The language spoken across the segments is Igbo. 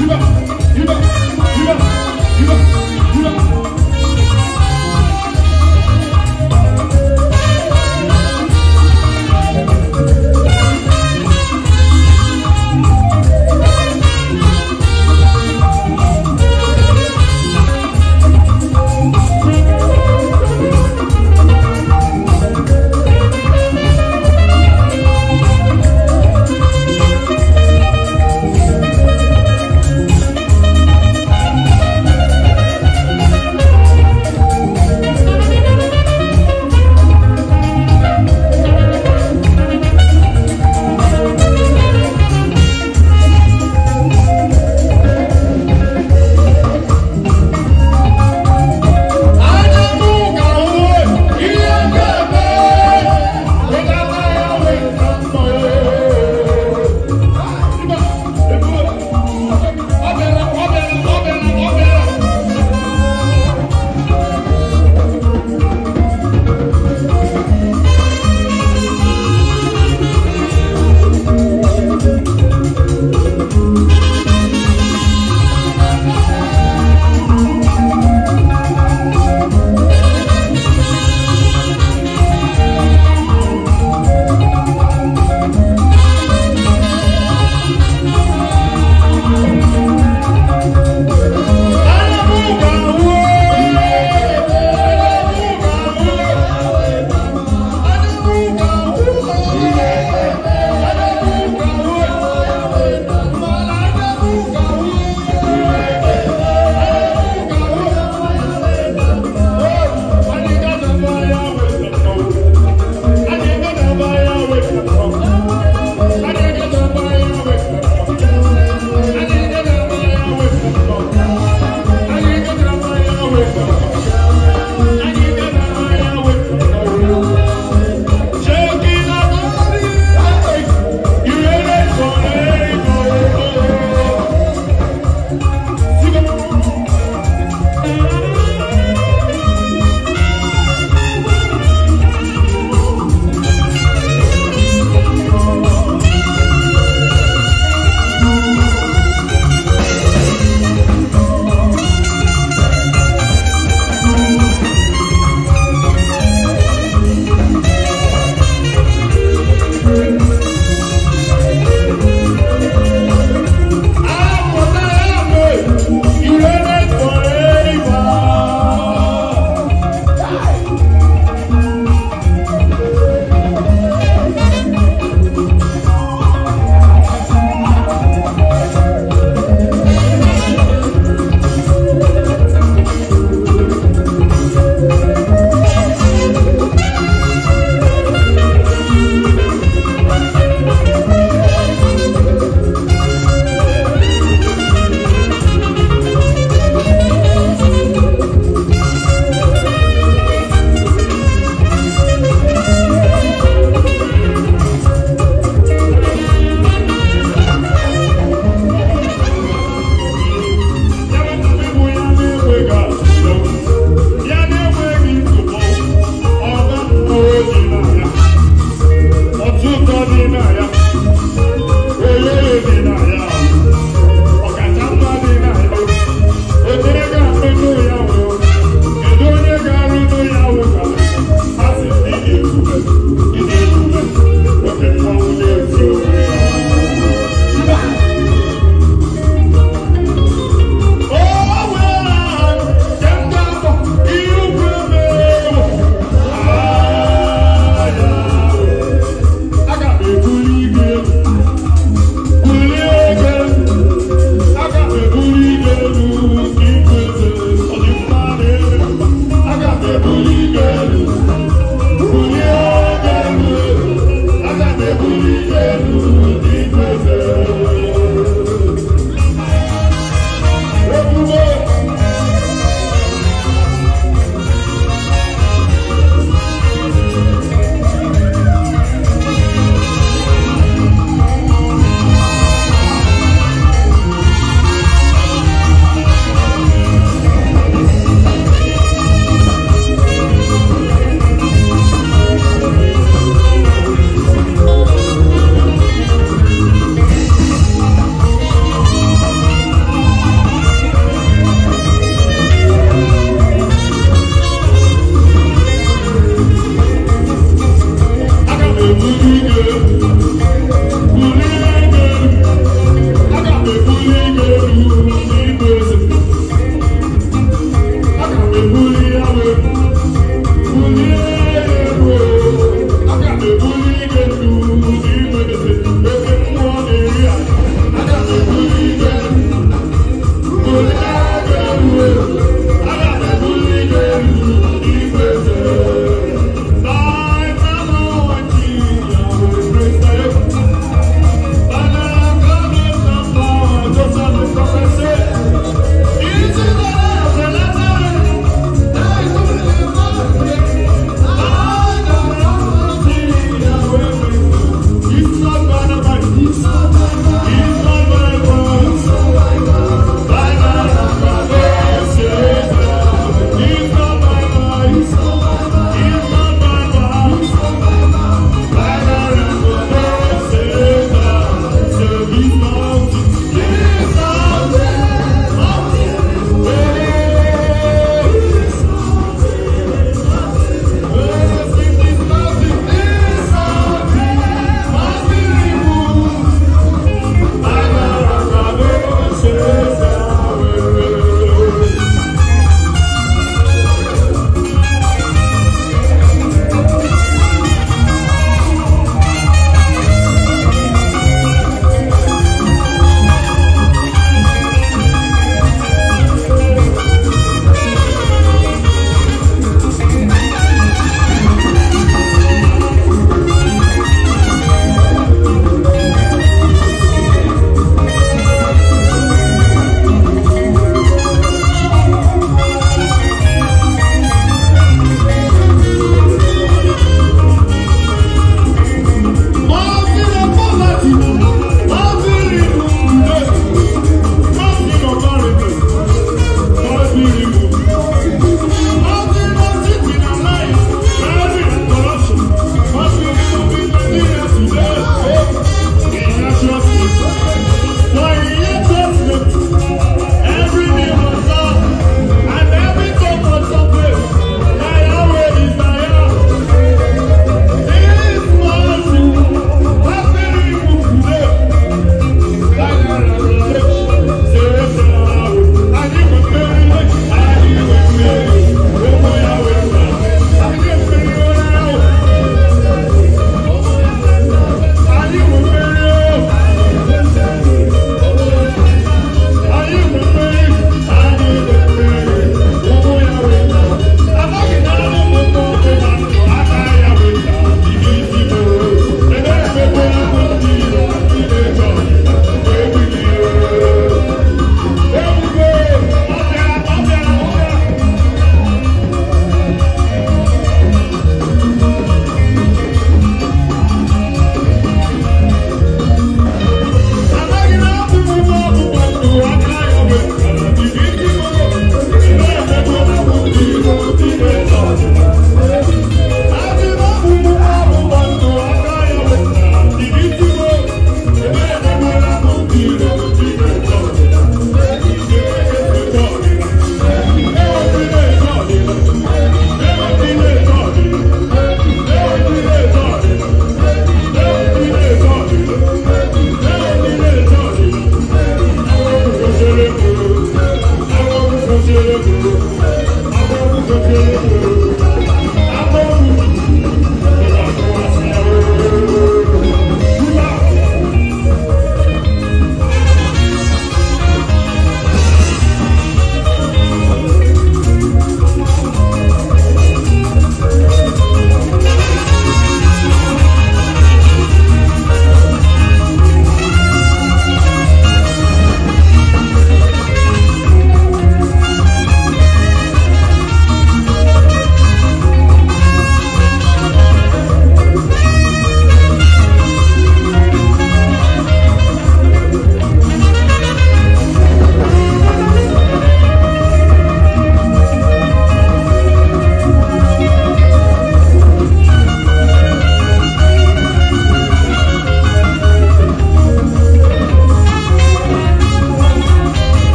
今今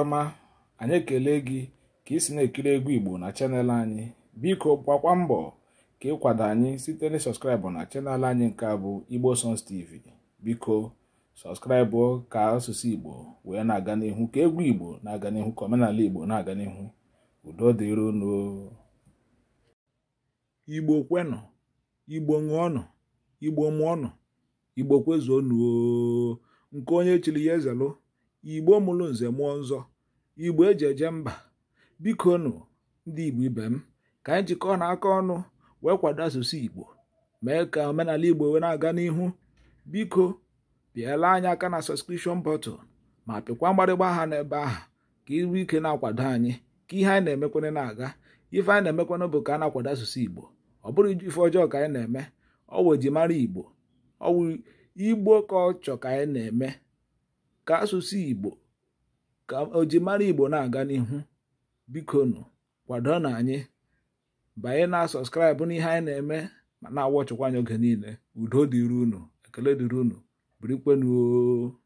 ọma anyị ekele gị ka ị si na-ekiri egwu igbo na chanel anyị biko gbakwa mbọ ka ịkwado anyị site na sọskraịbụ na chanel anyị nke a bụ igbo songs tv biko sọskraịbụ ka asụsụ igbo wee na-aga n'ihu ka egwu igbo na-aga n'ihu ka omenala igbo na-aga n'ihu udo dịrị igbo kwenụ igbo ṅụọnụ igbo mụọnụ igbo kwezuo nuo nke onye chiri ya ezelụ igbo mụrụ nze mụọ nzọ igbo eji eje mba biko nụ ndị igbo ibe m ka anyị jikọọ na aka ọnụ wee kwado asụsụ igbo mee ka omenala igbo wee na-aga n'ihu biko pịala anyị aka na sọskripshọn bọtụl ma pịkwa mgbarịgba aha n'ebe ahụ ka iru ike na-akwado anyị ka ihe anyị na-emekwana na-aga ife anyị na-emekwana bụ ka a na-akwado asụsụ igbo ọ bụrụ ife ọjọọ ka anyị na-eme ọ wụ eji mara igbo ọ wụ igbo ka ọ ka anyị na-eme ka asụsụ Igbo ka ojimara Igbo na-aga n'ihu biko nụ kwado na anyị banye na sọskraịbụ n'ihe anyị na-eme ma na-awọchịkwa anyị oge niile udo dịrị unu ekele dịrị unu birikwenuo